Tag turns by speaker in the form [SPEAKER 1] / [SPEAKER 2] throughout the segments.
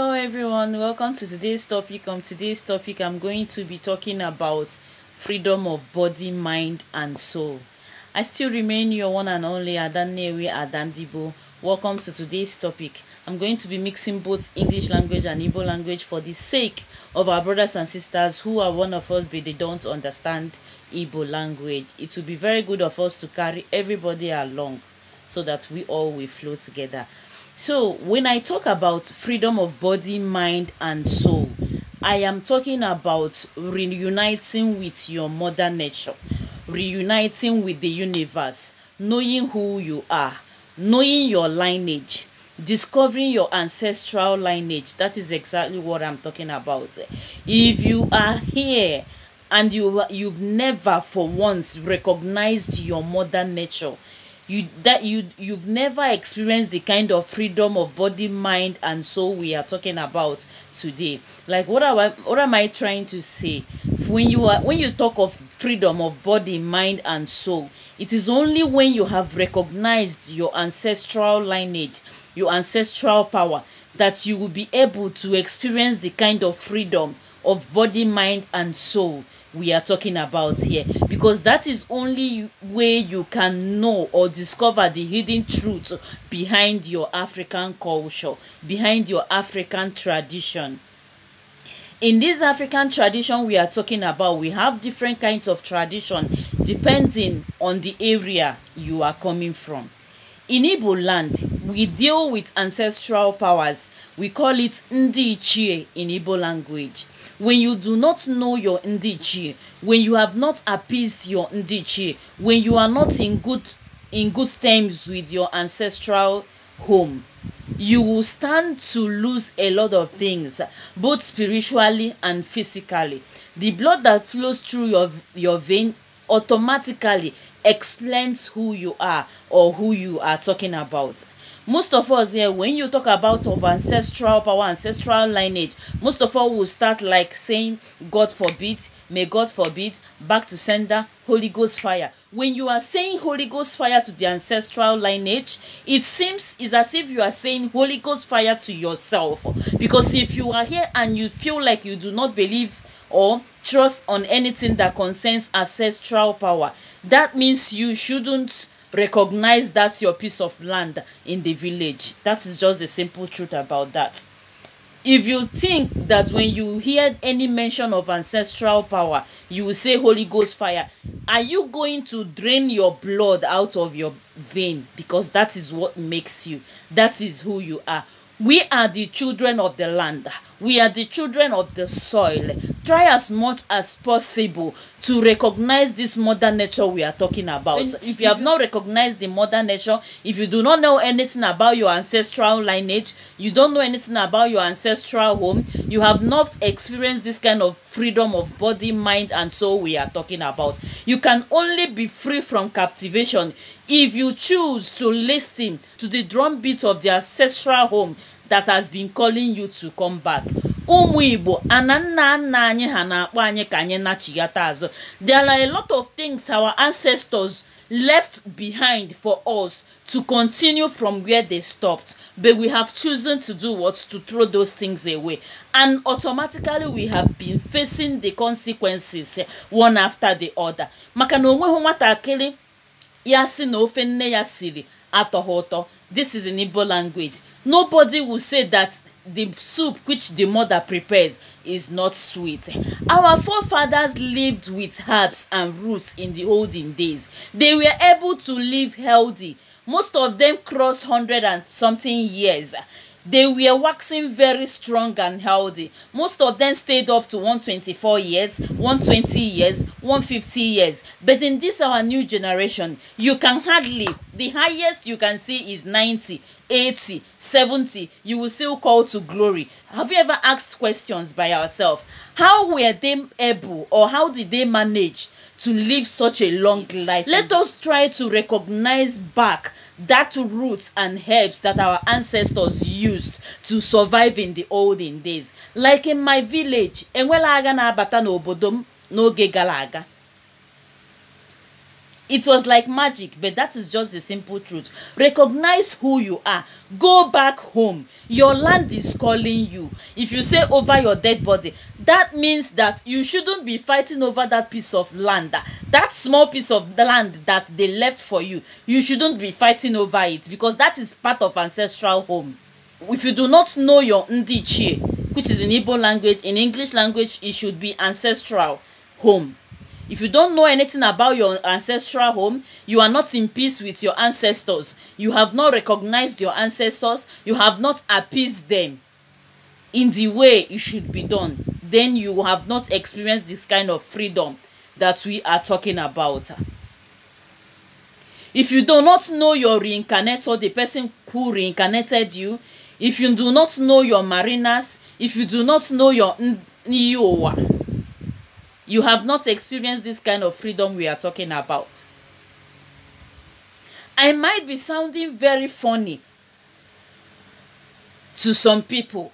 [SPEAKER 1] Hello everyone, welcome to today's topic. On today's topic, I'm going to be talking about freedom of body, mind and soul. I still remain your one and only Adannewe Adandibo. Welcome to today's topic. I'm going to be mixing both English language and Igbo language for the sake of our brothers and sisters who are one of us but they don't understand Igbo language. It will be very good of us to carry everybody along so that we all will flow together. So, when I talk about freedom of body, mind, and soul, I am talking about reuniting with your mother nature, reuniting with the universe, knowing who you are, knowing your lineage, discovering your ancestral lineage. That is exactly what I'm talking about. If you are here, and you you've never for once recognized your mother nature you that you you've never experienced the kind of freedom of body mind and soul we are talking about today like what am i what am i trying to say when you are when you talk of freedom of body mind and soul it is only when you have recognized your ancestral lineage your ancestral power that you will be able to experience the kind of freedom of body mind and soul we are talking about here because that is only way you can know or discover the hidden truth behind your african culture behind your african tradition in this african tradition we are talking about we have different kinds of tradition depending on the area you are coming from In Igbo land, we deal with ancestral powers. We call it Ndi Ichie in Igbo language. When you do not know your Ndi Ichie, when you have not appeased your Ndi Ichie, when you are not in good in good terms with your ancestral home, you will stand to lose a lot of things, both spiritually and physically. The blood that flows through your, your vein automatically explains who you are or who you are talking about most of us here when you talk about of ancestral power ancestral lineage most of us will start like saying god forbid may god forbid back to sender holy ghost fire when you are saying holy ghost fire to the ancestral lineage it seems is as if you are saying holy ghost fire to yourself because if you are here and you feel like you do not believe or trust on anything that concerns ancestral power. That means you shouldn't recognize that's your piece of land in the village. That is just the simple truth about that. If you think that when you hear any mention of ancestral power, you will say Holy Ghost fire, are you going to drain your blood out of your vein? Because that is what makes you. That is who you are. We are the children of the land. We are the children of the soil. Try as much as possible to recognize this mother nature we are talking about. And if you have not recognized the mother nature, if you do not know anything about your ancestral lineage, you don't know anything about your ancestral home, you have not experienced this kind of freedom of body, mind, and soul we are talking about. You can only be free from captivation if you choose to listen to the drumbeat of the ancestral home that has been calling you to come back ụmụ igbo ana nna nna anyị ha na-akpọ anyị ka anyị nachighata azụ there are a lot of things our ancestors left behind for us to continue from where they stopped but we have chosen to do what to throw those things away and automatically we have been facing the consequences eh, one after the other maka na onweghị nwatakịrị ya si na ofe nne ya siri atọghị ụtọ this is in igbo language nobody will say that the soup which the mother prepares is not sweet. Our forefathers lived with herbs and roots in the olden days. They were able to live healthy. Most of them crossed hundred and something years. They were waxing very strong and healthy. Most of them stayed up to one twenty-four years, one twenty years, one fifty years. But in this our new generation, you can hardly the highest you can see is 90 80 70 you will still call to glory have you ever asked questions by yourself? how were they able or how did they manage to live such a long life let us try to recognize back that roots and herbs that our ancestors used to survive in the olden days like in my village enwela agha na-abata n'obodo m n'oge gara aga it was like magic but that is just the simple truth recognize who you are go back home your land is calling you if you say over your dead body that means that you shouldn't be fighting over that piece of land that small piece of land that they left for you you shouldn't be fighting over it because that is part of ancestral home if you do not know your ndichie which is in igbo language in english language it should be ancestral home if you don't know anything about your ancestral home you are not in peace with your ancestors you have not recognized your ancestors you have not appeased them in the way it should be done then you have not experienced this kind of freedom that we are talking about if you do not know your reincarnator the person who reincarnated you if you do not know your marinas if you do not know your n'iyi you have not experienced this kind of freedom we are talking about. I might be sounding very funny to some people,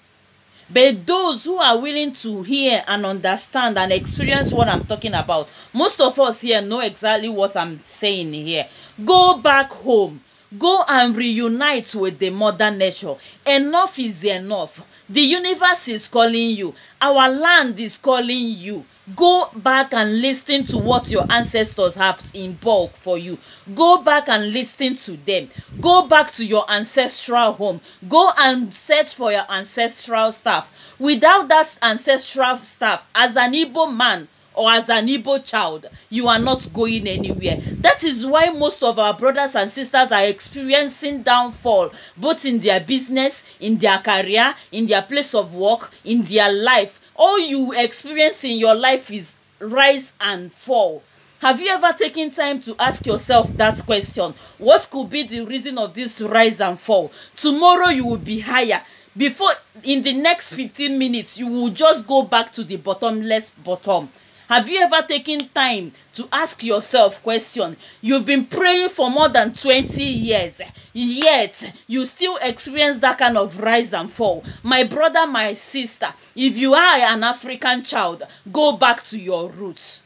[SPEAKER 1] but those who are willing to hear and understand and experience what I'm talking about, most of us here know exactly what I'm saying here. Go back home. Go and reunite with the mother nature. Enough is enough. The universe is calling you. Our land is calling you. go back and listen to what your ancestors have in bulk for you go back and listen to them go back to your ancestral home go and search for your ancestral stuff without that ancestral stuff as an igbo man or as an Igbo child, you are not going anywhere. That is why most of our brothers and sisters are experiencing downfall, both in their business, in their career, in their place of work, in their life, all you experience in your life is rise and fall have you ever taken time to ask yourself that question what could be the reason of this rise and fall tomorrow you will be higher before in the next 15 minutes you will just go back to the bottomless bottom Have you ever taken time to ask yourself question? You've been praying for more than 20 years, yet you still experience that kind of rise and fall. My brother, my sister, if you are an African child, go back to your roots.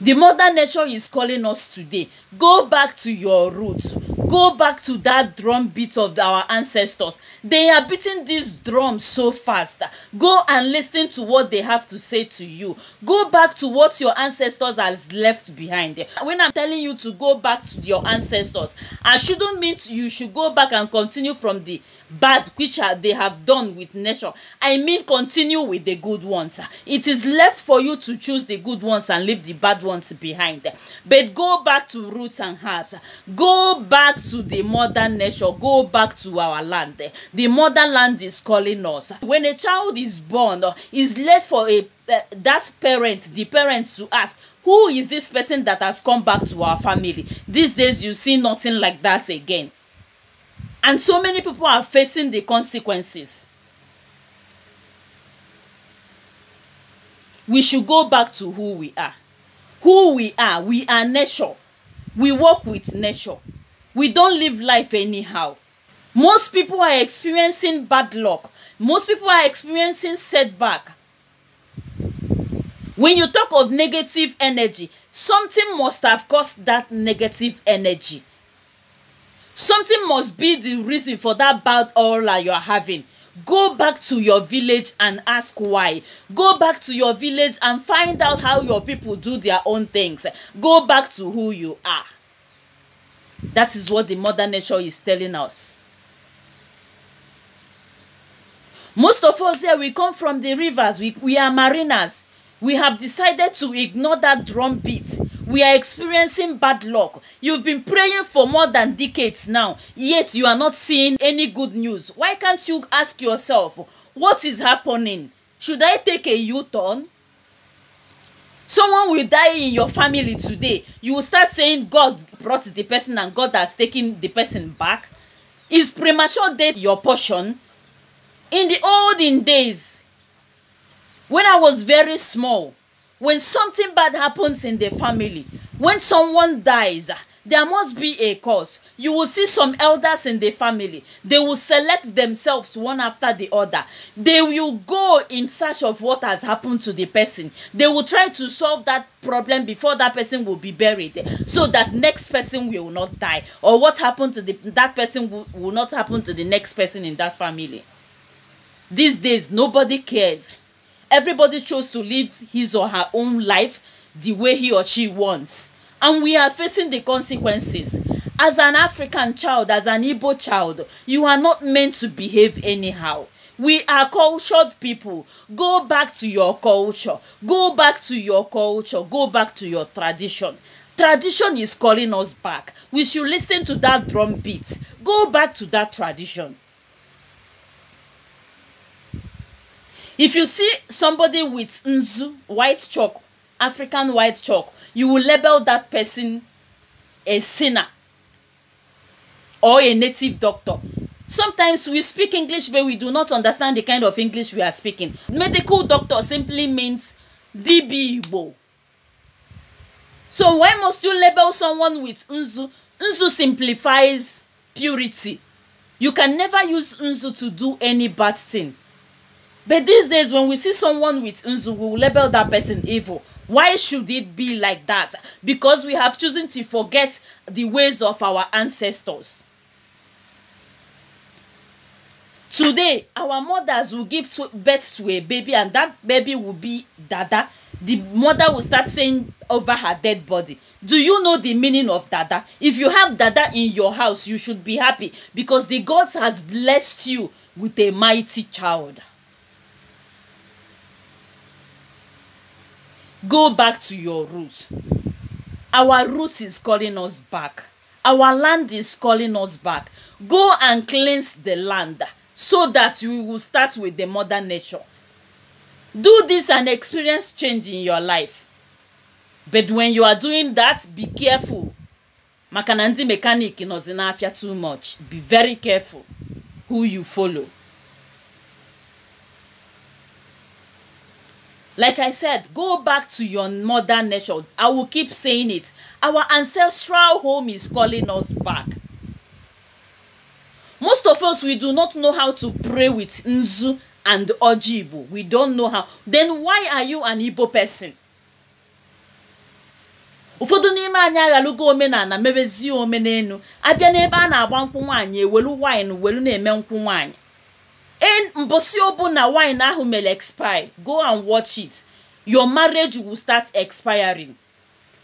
[SPEAKER 1] The mother nature is calling us today. Go back to your roots. go back to that drum beat of our ancestors they are beating this drum so fast go and lis ten to what they have to say to you go back to what your ancestors has left behind when i'm telling you to go back to your ancestors i shouldn't mean you should go back and continue from the bad which they have done with nature i mean continue with the good ones it is left for you to choose the good ones and leave the bad ones behind but go back to roots and herbs go back back to the mother nature, go back to our land the land is calling us when a child is born is left for a uh, that parent the parent to ask who is this person that has come back to our family these days you see nothing like that again and so many people are facing the consequences we should go back to who we are who we are we are nature we work with nature we don't live life anyhow most people are experiencing bad luck most people are experiencing setback when you talk of negative energy something must have caused that negative energy something must be the reason for that bad aura you're having go back to your village and ask why go back to your village and find out how your people do their own things go back to who you are That is what the mother nature is telling us. Most of us here, we come from the rivers. We, we are mariners. We have decided to ignore that drumbeat. We are experiencing bad luck. You've been praying for more than decades now, yet you are not seeing any good news. Why can't you ask yourself, what is happening? Should I take a U-turn? someone will die in your family today you will start saying god brought the person and god has taken the person back is premature death your portion in the olden days when i was very small when something bad happens in the family when someone dies there must be a cause. You will see some elders in the family. They will select themselves one after the other. They will go in search of what has happened to the person. They will try to solve that problem before that person will be buried so that next person will not die or what happened to the, that person will, will not happen to the next person in that family. These days, nobody cares. Everybody chose to live his or her own life the way he or she wants and we are facing the consequences. As an African child, as an Igbo child, you are not meant to behave anyhow. We are cultured people. Go back to your culture. Go back to your culture. Go back to your tradition. Tradition is calling us back. We should listen to that drum beat. Go back to that tradition. If you see somebody with nzu, white chalk African white chalk, you will label that person a sinner or a native doctor. Sometimes we speak English, but we do not understand the kind of English we are speaking. Medical doctor simply means DB Igbo. So why must you label someone with Nzu? Nzu simplifies purity. You can never use Nzu to do any bad thing. But these days, when we see someone with Nzu, we will label that person evil. Why should it be like that? Because we have chosen to forget the ways of our ancestors. Today, our mothers will give birth to a baby, and that baby will be Dada. The mother will start saying over her dead body. Do you know the meaning of Dada? If you have Dada in your house, you should be happy because the gods has blessed you with a mighty child. go back to your root our root is calling us back our land is calling us back go and cleanse the land so that we will start with the mother nature do this and experience change in your life but when you are doing that be careful maka na ndị mekanik nọzi n'afịa too much be very careful who you follow like i said go back to your mother nature i will keep saying it our ancestral home is calling us back most of us we do not know how to pray with nzu and ojibo we don't know how then why are you an igbo person ụfọdụ n'ime anyị aghalugo omenala mebezie omenelu abịa n'ebe a na-agba nkwụ nwaanyị ewelu wine welu na-eme nkwụ nwaanyị mbụ si obu na wine ahụ mere expire go and watch it your marriage will start expiring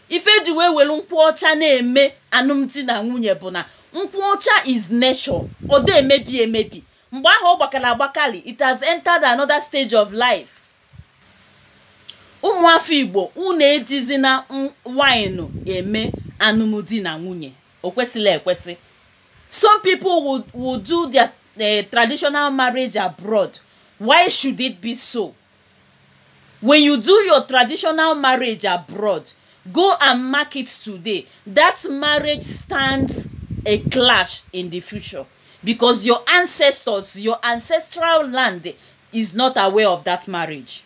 [SPEAKER 1] ife ji wee were nkwụ ọcha na-eme anụmdi na nwunye bụ na nkwụ ọcha is nature ọ dị emebi emebi mgbe ahụ ọ gbakara agbakali it has entered another stage of life ụmụafọ igbo unu ejizi na wine eme anụmdi na nwunye o kwesịrị ekwesị some people would, would do uh, traditional marriage abroad why should it be so when you do your traditional marriage abroad go and mark it today that marriage stands a clash in the future because your ancestors your ancestral land is not aware of that marriage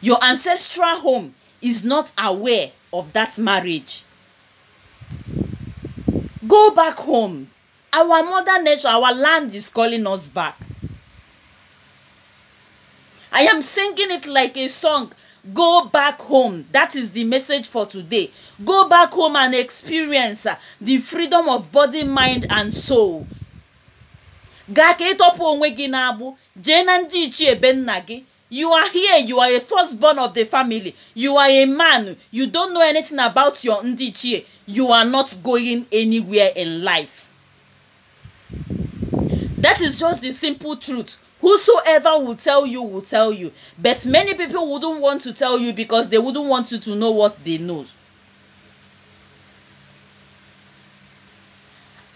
[SPEAKER 1] your ancestral home is not aware of that marriage go back home Our mother nature, our land is calling us back. I am singing it like a song. Go back home. That is the message for today. Go back home and experience uh, the freedom of body, mind, and soul. gaa ka ịtọpụ onwe gị n'agbụ jee na ndị ichie be nna gị you are here you are a firstborn of the family you are a man you don't know anything about your ndị ichie you are not going anywhere in life that is just the simple truth. Whosoever will tell you will tell you. But many people wouldn't want to tell you because they wouldn't want you to know what they know.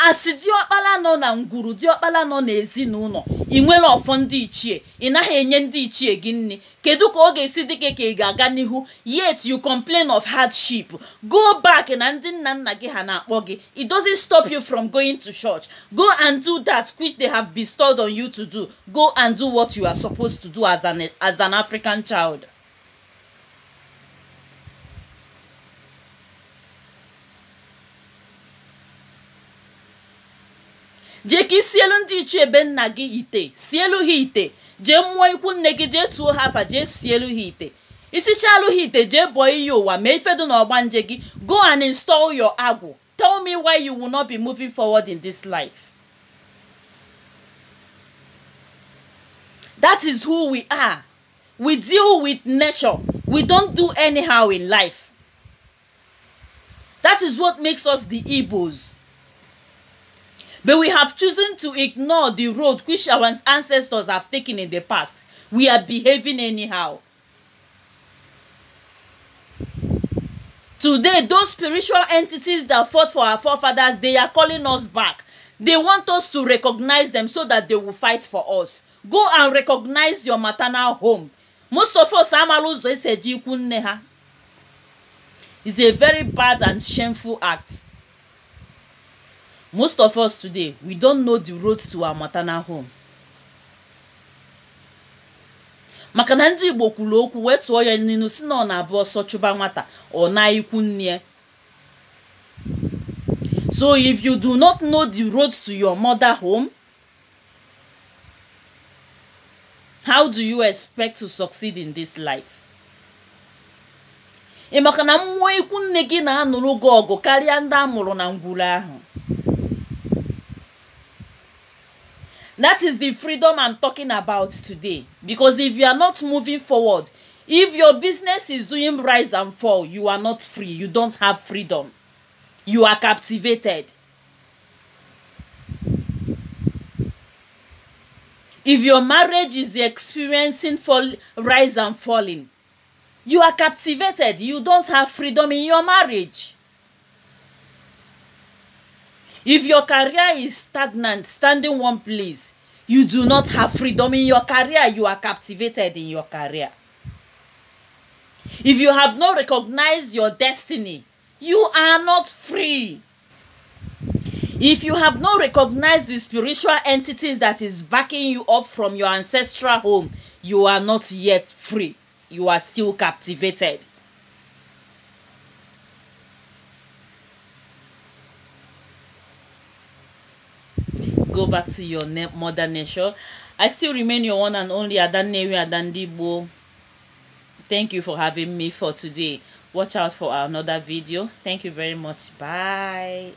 [SPEAKER 1] asị diọkpala nọ na ngwuru diọkpala nọ n'ezinụlọ ị nwere ọfọ ndị ichie ị naghị enye ndị ichie gị nne kedu ka ọ ga-esi dị gị ka ị ga-aga n'ihu yet you complain of hardship go back na ndị nna nna gị ha na-akpọ gị it doesn't stop you from going to church go and do that which they have bestowed on you to do go and do what you are supposed to do as an, as an African child jee ka isielu ndị ichie ebe nna gị ite sielu ha ite jee mụọ ikwu nne gị jee tuo ha afa jee sielu ha ite isichaalụ ha ite jee bọọ iyi ụwa mee ifedu na ọgbanje gị go and install your agwụ tell me why you will not be moving forward in this life that is who we are we deal with nature we don't do anyhow in life that is what makes us the igbos But we have chosen to ignore the road which our ancestors have taken in the past. We are behaving anyhow. Today, those spiritual entities that fought for our forefathers, they are calling us back. They want us to recognize them so that they will fight for us. Go and recognize your maternal home. Most of us amala ụzọ esi eji ikwu nne ha. It's a very bad and shameful act. most of us today we don't know the road to our maternal home maka na ndị igbo kwuru okwu wee tụọ ya n'ilu si na ọ na-abụ ọsọ chụba nwata ọ na-ikwu nne so if you do not know the road to your mother home how do you expect to succeed in this life ị maka na mmụọ ikwu nne gị na-anụrụ gị ọgụ karịa ndị a mụrụ na ngwuru ahụ That is the freedom I'm talking about today. Because if you are not moving forward, if your business is doing rise and fall, you are not free. You don't have freedom. You are captivated. If your marriage is experiencing fall, rise and falling, you are captivated. You don't have freedom in your marriage if your career is stagnant standing one place you do not have freedom in your career you are captivated in your career if you have not recognized your destiny you are not free if you have not recognized the spiritual entities that is backing you up from your ancestral home you are not yet free you are still captivated go back to your ne- mother nature. I still remain your one and only Adannewi Adandibo. Thank you for having me for today. Watch out for another video. Thank you very much. Bye.